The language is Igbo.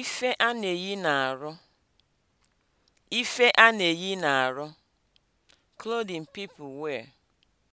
Ife a na-eyi n'arụ. Ife a na-eyi n'arụ. Clothing people wear.